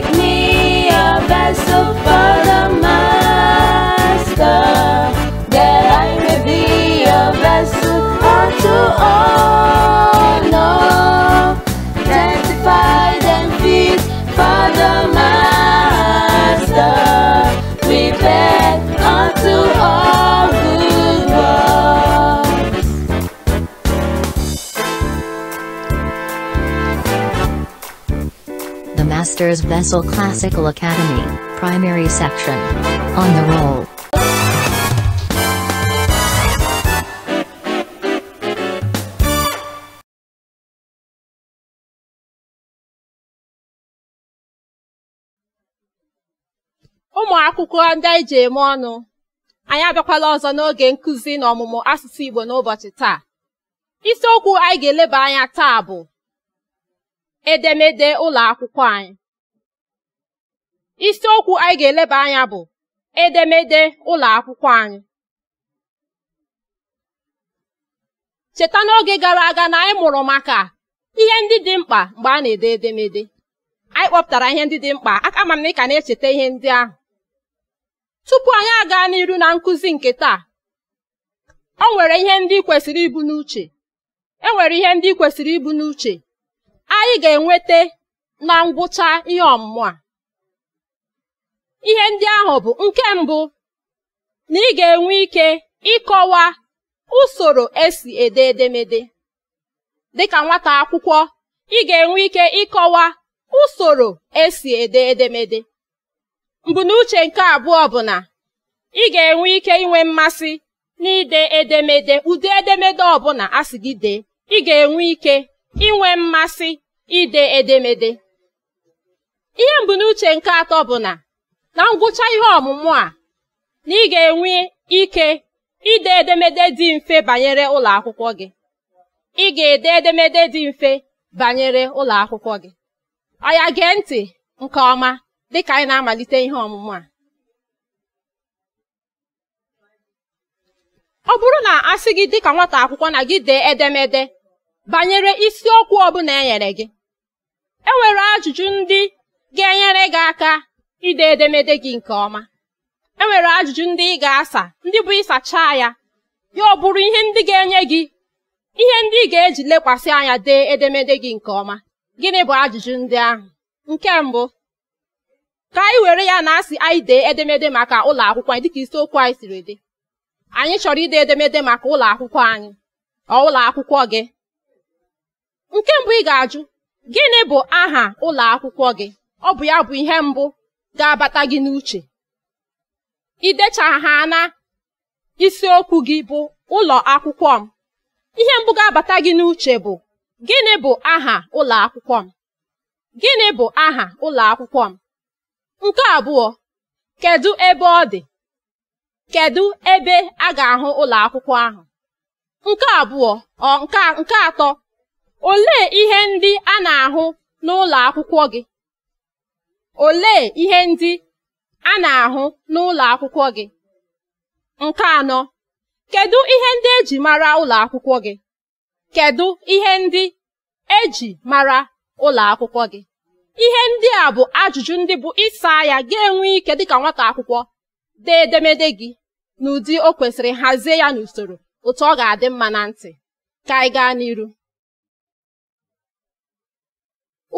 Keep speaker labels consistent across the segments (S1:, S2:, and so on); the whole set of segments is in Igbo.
S1: make me a vessel. Brothers Vessel Classical Academy, Primary Section. On the roll. ndị anyị ji eme ọnụ anyị abịakwala ọzọ n'oge nkụzi na ọmụmụ asụsụ Igbo n'ụbọchị taa isiokwu anyị ga-eleba anya taa bụ edemede ụlọ akwụkwọ anyị isiokwu anyị ga-eleba anya bụ edemede ụlọ akwụkwọ anyị cheta n'oge gara aga na anyị mụrụ maka ihe ndị dị mkpa mgbe a na-ede edemede anyị kpọpụtara ihe ndị dị mkpa aka ma ị ka na-echeta ihe ndị ahụ tupu anyị aga n'iru na nkụzi nke taa o nwere ihe ndị kwesịrị ibu n'uche e nwere ihe ndị kwesịrị ibu n'uche anyị ga-enweta na ngwụcha ihe ọmụmụ a ihe ndị ahụ bụ nke mbụ na ị ga-enwe ike ịkọwa usoro esi ede edemede dịka nwata akwụkwọ ị ga-enwe ike ịkọwa usoro esi ede edemede mbunuche nke abụọ bụ na ị ga-enwe ike inwe mmasị n'ide edemede ụdị edemede ọbụla a sị gị dee ị ga-enwe ike inwe mmasị ide edemede ihe mbunuche nke atọ bụ na na ngwụcha ihe ọmụmụ a na ị ga-enwe ike ide edemede dị mfe banyere ụlọ akwụkwọ gị ị ga-ede edemede dị mfe banyere ụlọ akwụkwọ gị ọya gee ntị nke ọma dịka anyị na-amalite ihe ọmụmụ a ọ bụrụ na asị gị dịka nwata akwụkwọ na gị dee edemede banyere isiokwu ọbụla e nyere gị e nwere ajụjụ ndị ga-enyere gị aka ide edemede gị nke ọma e nwere ajụjụ ndị ị ga-asa ndị bụ ịsachaa ya ya ọ bụrụ ihe ndị ga-enye gị ihe ndị ị ga-eji lekwasị anya dee edemede gị nke ọma gịnị bụ ajụjụ ndị ahụ nke mbụ ka anyị were ya na asị anyị dee edemede maka ụlọ akwụkwọ anyị dịka isiokwu anyị siri dị anyị chọrọ ide edemede maka ụlọ akwụkwọ anyị ọ ụlọ akwụkwọ gị nke mbụ ị ga-ajụ gịnị bụ aha ụlọ akwụkwọ gị ọ bụ ya bụ ihe mbụ ga-abata gị n'uche i ha na isiokwu gị bụ ụlọ akwụkwọ m ihe mbụ ga-abata gị n'uche bụ gịnị bụ aha ụlọ akwụkwọ m gịnị bụ aha ụlọ akwụkwọ m nke abụọ kedu ebe ọ dị kedu ebe a ga-ahụ ụlọ akwụkwọ ahụ nke abụọ ọ nke atọ olee ihe ndị a na-ahụ n'ụlọ akwụkwọ gị Olee ihe ndị a na-ahụ n'ụlọ akwụkwọ gị? Nke anọ, kedu ihe ndị e ji mara ụlọ akwụkwọ gị? Kedu ihe ndị eji mara ụlọ akwụkwọ gị? Ihe ndị a bụ ajụjụ ndị bụ ịsa ya ga-enwe ike dịka nwata akwụkwọ dee edemede gị n'ụdị o kwesịrị hazie ya n'usoro otu ọ ga-adị mma na ntị. Ka anyị gaa n'iru.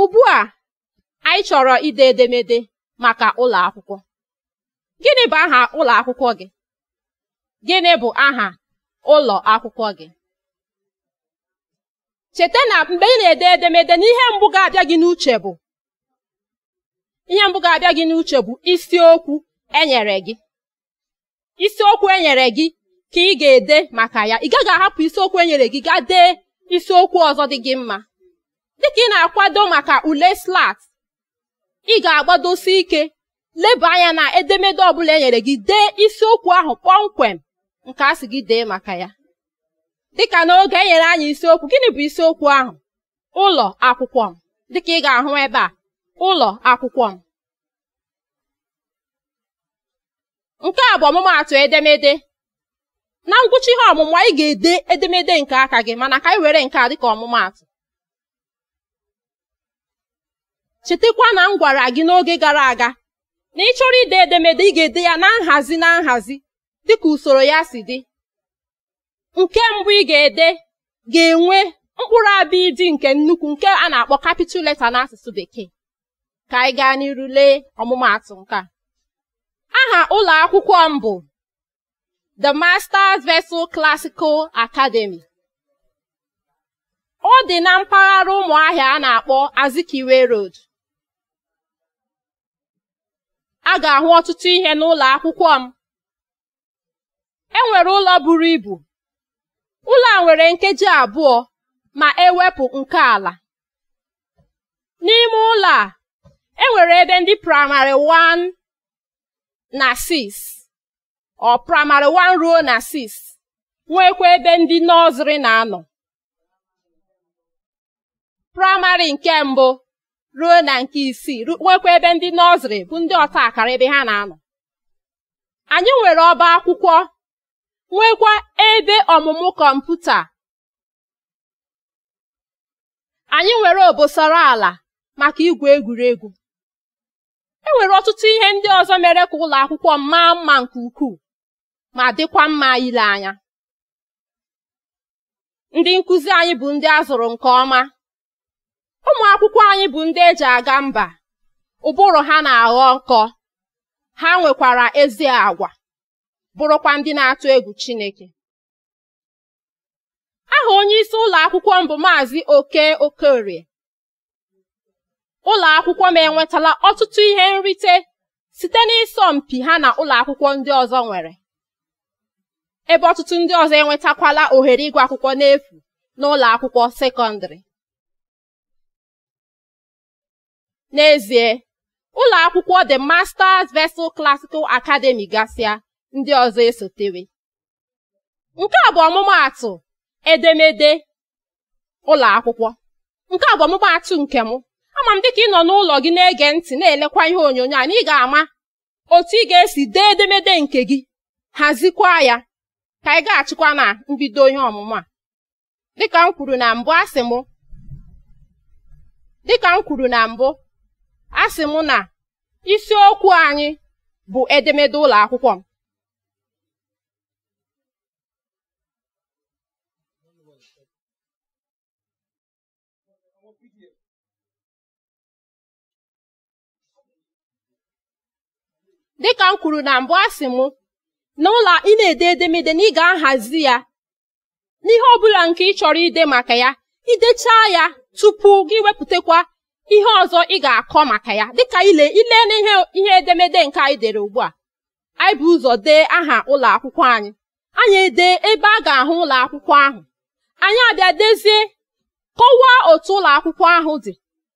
S1: Ugbu a anyị chọrọ ide edemede maka ụlọ akwụkwọ gịnị bụ aha ụlọ akwụkwọ gị gịnị bụ aha ụlọ akwụkwọ gị cheta na mgbe ị na-ede edemede n'ihe mbụ ga-abịa gị n'uche bụ ihe mbụ ga-abịa gị n'uche bụ isiokwu enyere gị isiokwu enyere gị ka ị ga-ede maka ya ị gaghị ahapụ isiokwu enyere gị gaa dee isiokwu ọzọ dị gị mma dịka ị na-akwado maka ule slat ị ga-agbadosi ike leba anya na edemede ọbụla e nyere gị dee isiokwu ahụ kpọmkwem nke a sị gị dee maka ya dị dịka n'oge e nyere anyị isiokwu gịnị bụ isiokwu ahụ ụlọ akwụkwọ m dịka ị ga-ahụ ebe a ụlọ akwụkwọ m nke a bụ ọmụmaatụ edemede na ngwụcha ihe ọmụmụ anyị ga-ede edemede nke aka gị mana ka anyị were nke a dịka ọmụmaatụ chetakwa na m gwara gị n'oge gara aga na ị chọrọ ide edemede ị ga-ede ya na nhazi na nhazi dịka usoro ya si dị nke mbụ ị ga-ede ga-enwe mkpụrụ abịa ịdị nke nnukwu nke a na-akpọ capital letter n'asụsụ bekee ka anyị gaa n'iru lee ọmụmaatụ nke aha ụlọ akwụkwọ m bụ The Masters Vessel Classical Academy ọ dị na mpaghara Ụmụahịa a na-akpọ Azikiwe Road a ga-ahụ ọtụtụ ihe n'ụlọ akwụkwọ m e nwere ụlọ buru ibu ụlọ a nwere nkeji abụọ ma ewepụ nke ala n'ime ụlọ a e nwere ebe ndị praịmarị 1 na 6 ọ praịmarị 1 ruo na 6 nwekwa ebe ndị nọzrị na-anọ praịmarị nke mbụ ruo na nke isii nwekwa ebe ndị nọzrị bụ ndị ọta akara ebe ha na-anọ anyị nwere ọba akwụkwọ nwekwa ebe ọmụmụ kọmputa anyị nwere obosara ala maka igwu egwuregwu e nwere ọtụtụ ihe ndị ọzọ mere ka ụlọ akwụkwọ maa mma nke ukwuu ma dịkwa mma ile anya ndị nkụzi anyị bụ ndị a zụrụ nke ọma ụmụ akwụkwọ anyị bụ ndị eji aga mba ụbụrụ ha na-aghọ nkọ ha nwekwara ezi agwa bụrụkwa ndị na-atụ egwu Chineke aha onye isi ụlọ akwụkwọ m bụ Maazị Oke Okorie ụlọ akwụkwọ m enwetala ọtụtụ ihe nrite site n'ịsọ mpi ha na ụlọ akwụkwọ ndị ọzọ nwere ebe ọtụtụ ndị ọzọ enwetakwala ohere ịgụ akwụkwọ n'efu n'ụlọ akwụkwọ sekọndịrị N'ezie, ụlọ akwụkwọ The Masters Vessel Classical Academy gasịa ndị ọzọ esotere. Nke a bụ ọmụmaatụ edemede ụlọ akwụkwọ. Nke a bụ ọmụmaatụ nke mụ. Ama m dịka ị nọ n'ụlọ gị na-ege ntị na-elekwa ihe onyonyo a na ị ga-ama otu ị ga-esi dee edemede nke gị hazikwa ya ka ga gaghachikwa na mbido ihe ọmụmụ a. Dịka m kwuru na mbụ asị m dịka m kwuru na mbụ a sị m na isiokwu anyị bụ edemede ụlọ akwụkwọ m dịka m kwuru na mbụ a sị m n'ụlọ ị na-ede edemede na ị ga-ahazi ya n'ihe ọbụla nke ị chọrọ ide maka ya idechaa ya tupu gị wepụtakwa ihe ọzọ ị ga-akọ maka ya dịka ile ile n'ihe ihe edemede nke anyị dere ugbu a anyị bụ ụzọ dee aha ụlọ akwụkwọ anyị anyị dee ebe a ga-ahụ ụlọ akwụkwọ ahụ anyị abịa dezie kọwaa otu ụlọ akwụkwọ ahụ dị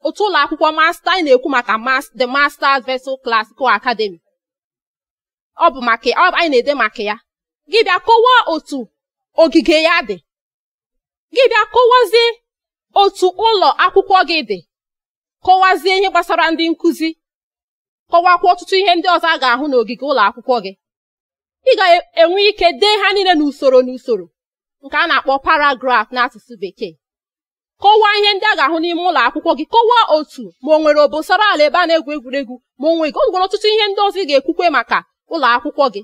S1: otu ụlọ akwụkwọ masta anyị na-ekwu maka the masters vessel classical academy ọ bụ maka anyị na-ede maka ya gị bịa kọwaa otu ogige ya dị gị bịa kọwazie otu ụlọ akwụkwọ gị dị kọwazie ihe gbasara ndị nkụzi kọwakwa ọtụtụ ihe ndị ọzọ a ga-ahụ n'ogige ụlọ akwụkwọ gị ị ga-enwe ike dee ha niile n'usoro n'usoro nke a na-akpọ paragraf n'asụsụ bekee kọwaa ihe ndị a ga-ahụ n'ime ụlọ akwụkwọ gị kọwaa otu ma ọ nwere obosara ala ebe a na-egwu egwuregwu ma o nweghị ọ nwere ọtụtụ ihe ndị ọzọ ị ga-ekwukwe maka ụlọ akwụkwọ gị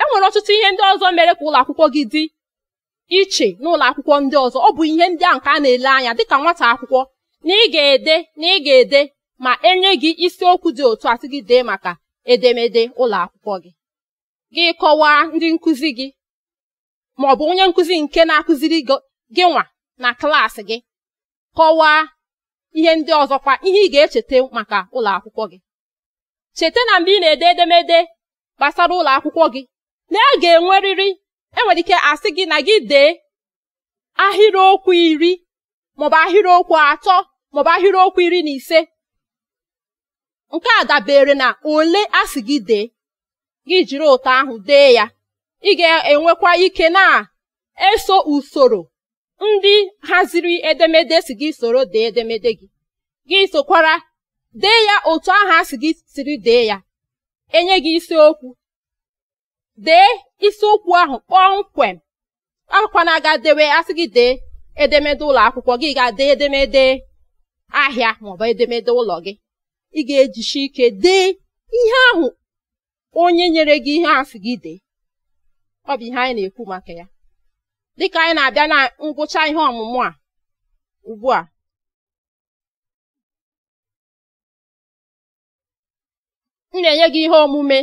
S1: e nwere ọtụtụ ihe ndị ọzọ mere ka ụlọ akwụkwọ gị dị iche n'ụlọ akwụkwọ ndị ọzọ ọ bụ ihe ndị a nke a na-ele anya dịka nwata akwụkwọ na ị ga-ede na ị ga-ede ma enye gị isiokwu dị otu asị gị dee maka edemede ụlọ akwụkwọ gị gị kọwaa ndị nkụzi gị ma ọ bụ onye nkụzi nke na-akụziri gị nwa na klaasị gị kọwaa ihe ndị ọzọkwa ihe ị ga-echeta maka ụlọ akwụkwọ gị cheta na mgbe ị na-ede edemede gbasara ụlọ akwụkwọ gị na ị ga-enwerịrị enwere ike asị gị na gị dee ahịrịokwu iri maọbụ ahịrịokwu atọ maọbụ ahịrịokwu iri na ise nke a dabere na ole a sị gị dee gị jiri ụtọ ahụ dee ya ị ga-enwekwa ike na-eso usoro ndị haziri edemede si gị soro dee edemede gị gị sokwara dee ya otu ahụ a sị gị siri dee ya enye gị isiokwu dee isiokwu ahụ kpọmkwem akwana aga dewe asị gị dee edemede ụlọ akwụkwọ gị ga-ade edemede ahịa maọbụ edemede ụlọ gị ị ga-ejichi ike dee ihe ahụ onye nyere gị ihe asị gị dee ọ bụ ihe anyị na-ekwu maka ya dịka anyị na-abịa na ngwụcha ihe ọmụmụ a ugbu a m na-enye gị ihe omume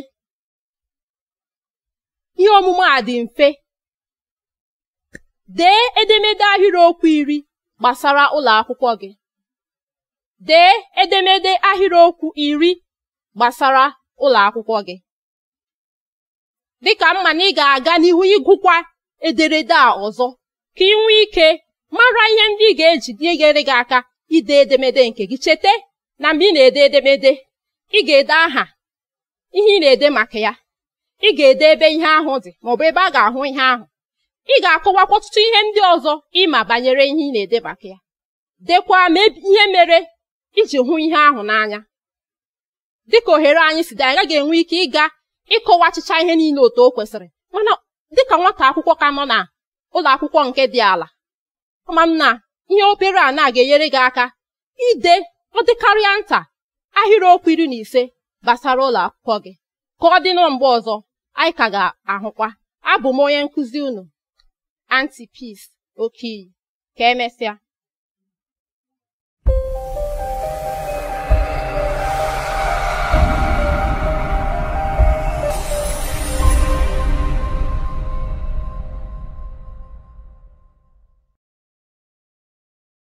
S1: ihe omume a dị mfe dee edemede ahịrịokwu iri gbasara ụlọ akwụkwọ gị dee edemede ahịrịokwu iri gbasara ụlọ akwụkwọ gị dịka mma na ị ga-aga n'ihu ịgụkwa ederede a ọzọ ka ị nwee ike mara ihe ndị ị ga-eji nyegere gị aka ide edemede nke gị cheta na mgbe ị na-ede edemede ị ga-ede aha ihe ị na-ede maka ya ị ga-ede ebe ihe ahụ dị maọbụ ebe a ga-ahụ ihe ahụ ị ga-akọwakwa ọtụtụ ihe ndị ọzọ ịma banyere ihe ị na-edebaka ya dekwa ma ihe mere iji hụ ihe ahụ n'anya dịka ohere anyị si dị anyị gaghị enwe ike ịga ịkọwa achịcha ihe niile otu o kwesịrị mana dịka nwata akwụkwọ ka nọ na ụlọ akwụkwọ nke dị ala ama m na ihe obere a na-ga-enyere gị aka ide ọ dịkarịa nta ahịrịokwu iri na ise gbasara ụlọ akwụkwọ gị ka ọ dị na mgbe ọzọ anyị ka ga-ahụkwa abụ m onye nkụzi unu oke Okiyi ka emesịa